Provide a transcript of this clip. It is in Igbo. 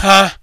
ha